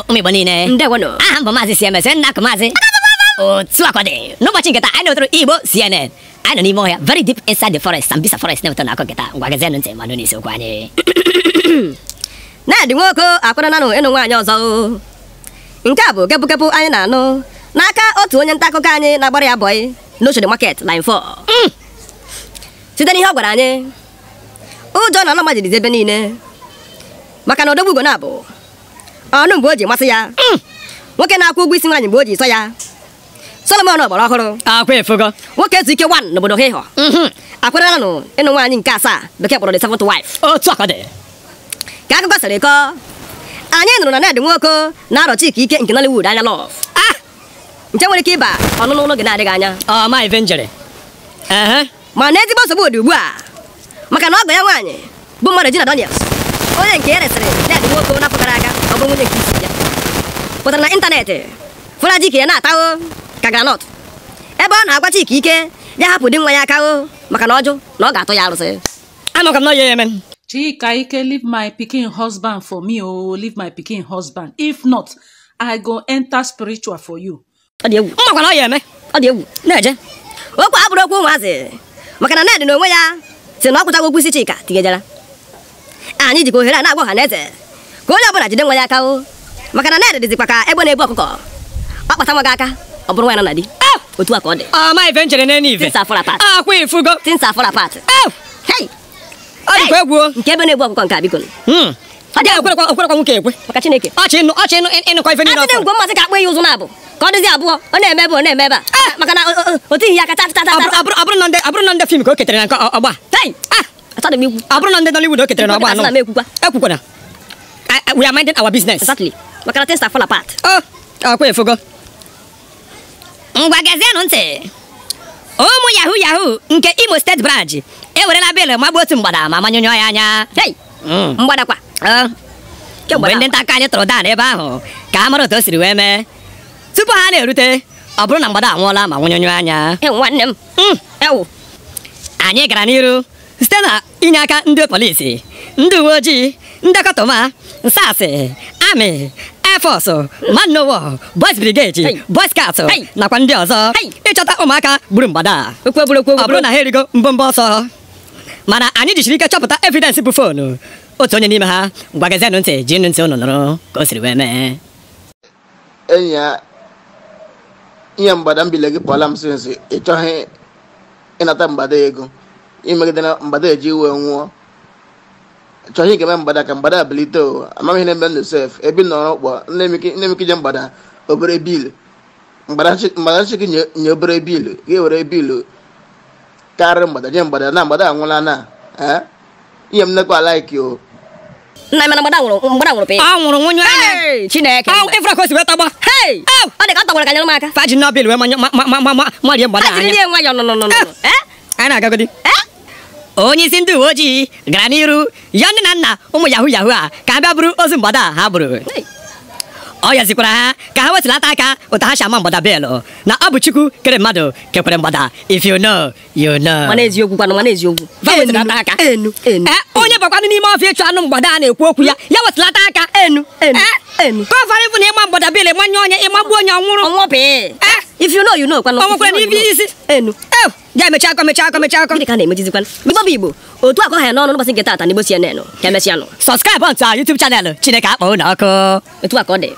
ụnụ ụmụ Igbo niile ndewonụ aha m maazị CMS nna akụ maazị otu akwa n'ụbọchị nketa anyị nọtụrụ Igbo CNN anyị nọ n'ime ọhịa very deep inside the forest Sambisa forest na-ewetọ na akọ nketa ngwa gazienụ ntị manụ n'isi okwu anyị na-adị nwoke akwarananụ ịnụ nwaanyị ọzọ nke a bụ kepụkepụ anyị na-anụ n'aka otu onye nta akụkọ anyị na-agbara ya bọyị n'Oshodi Market line 4 mm. site n'ihe ọ gwara anyị ụjọ na mmadụ majirizi ebe niile maka na odogbugo na-abụ ọnụ mgbe o ji masị ya hmm. nwoke na-akwụ ụgwọ isi nwaanyị mgbe o ji sọ ya solomon ọgbara ọhụrụ akwa efego nwoke ezu ike wan n'obodo ha ịhọ mhm. akwarelanụ ịnụ nwaanyị nke asaa bekee kpọrọ the seventh wife otu aka dị ka akụkọ sịrị kọọ anyị nụrụ na Ned Nwoko na-arọ Chika Ike nke Nollywood anya lọv ah! nke nwere ike ịba ọnụnụ n'oge na-adịghị anya ọma oh, ife njere mana ezigbo nsogbu dị ugbu a maka na ọgọ ya nwaanyị bụ mmadụ Gina Daniels onye nke ya e resịrị Ned Nwoko mówię historia. Potem na internety. Fụla dike na-ata o ka granọt. Ebe ọ na-agwacha ike ike, ya hapụ di nwa ya aka o maka na ọjụ na ọ ga-atụ ya arụsị. Amaka m na ya eme. Chika Ike leave my pikin husband for me o oh. leave my pikin husband if not I go enter spiritual for you. Ọ dị egwu. no, na ọ ya eme. Ọ dị egwu. Na-eje. Okwu abụrụ okwu ụmụazị maka na Ned na onwe ya si na ọ kwụtago okwu isi Chika tigejara. Anyị ah, jikwa ohere a na-agba ọha na eze. ka onye ọbụla jide nwa ya aka o maka na na-ede ka egbe na-ebu ọkụkọ ọ aka ọ bụrụ na di otu a ka ọ dị ama oh, ife nchere na ife akwa ifugo tinsa pat ah, ọ dịkwa egwu nke ebe na-ebu ọkụkọ nke abigolo hmm. okwerekwa nwoke ekwe maka Chineke ọchị ịnụ ọchị ịnụ ịnụkọ ife ọ dịzi ọ na ọ na-eme ebe a eh! maka na o tighị ya aka tatata abụrụ na ndị fim ka o ketere na nke ọgba abụrụ ah! na I, we are minding our business. Exactly. Makana things that fall apart. Oh, akwa oh, efogo. Ngwa gezienụ ntị. Ụmụ yahoo yahoo nke Imo State branch ewerela bịịlụ magbuo otu mgbada ma manyụnyụọ ya anya. Hey! Mm. Mgbadakwa. Ah. Mgbe ndị nta aka anyị tụrụ daa n'ebe ahụ ka a mara otu siri wee mee. Tupu ha na-erute, oburu na mgbada anwụọla ma nwụnyụnyụọ anya. E, m. Mm. E anyị gara n'iru site na ndị polisi, ndị uwe ojii ndekọta ụma nsasị amị efọsụ man n'ụwa boys brigade boy scout nakwa ndị ọzọ ịchọta ụmụaka gburu mgbada ọ bụrụ na ha erigo mbọ ọsọ mana anyị jichiri ike chọpụta evidensị bụ foonu otu onye n'ime ha gwagazienụ ntị ji nụ ntị ụnụ nụrụ ka o siri wee mee enyi ya ihe mgbada mbile gị pụọla m sịrị ịchọghị ịnata mgbada ego imegidena mgbada eji wee nwụọ chọghị ikele mgbada ka mgbada abilito amaghị na ebe m josef nemiki nọrọ ụkpọ nnemike je mgbada obere bilu mgbada chiki nye obere bil ga-ewere bilu karịrị mgbada je mgbada na mgbada anwụla na ihe m nekwa alaiki o nna m mgbada nwụrụ mgbada nwụrụ pịa ọ nwụrụ nwunye anya chineke ọ ifra ka o si wee tọgba hei ọ dị ka ọ tọgbara ka nyere m aka faji nọbil wee marie eh, anya anyị na eh onye isi ndị uwe ojii gara n'iru ya nne na nna ụmụ yahu yahu a ka ha bụrụ ozu mgbada ha bụrụ ọ yazikwara ha ka ha wetulata aka ụta ha si ama mgbada bịịlụ na ọ bụ chukwu kere mmadụ kekwere mgbada if you know you know. Eh, onye bakwanụ n'ime ọfịa ịchụ anụ mgbada a na-ekwu okwu ya ya wetulata aka ọfara eh, ịbụ na ịma mgbada bịịlụ ịmanye onye ịmagbu onye ọnwụrụ. ọnwụpị eh. if you know n'ibi isi. enu. ewu ga mechi akọ mechi akọ mechi akọ gịnị ka na-emejizikwa bụbọ bụ igbo otu akọ ha ya n'ọnụ n'ụbọchị nke taata n'igbo CNN ka emesịa nụ sọskraịbụ ntụ YouTube chanel Chineke akpọ ụlọ ọkụ etu a ka ọ dị